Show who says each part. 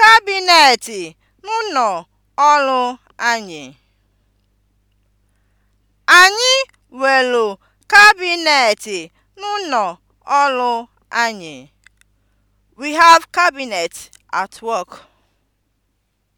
Speaker 1: Kabinet n'ụlọ ọrụ anyị. Anyị nwelu kabinet n'ụlọ ọrụ anyị. We have cabinet at work.